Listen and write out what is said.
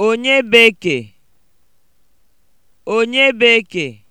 Onye bekee? Onye bekee?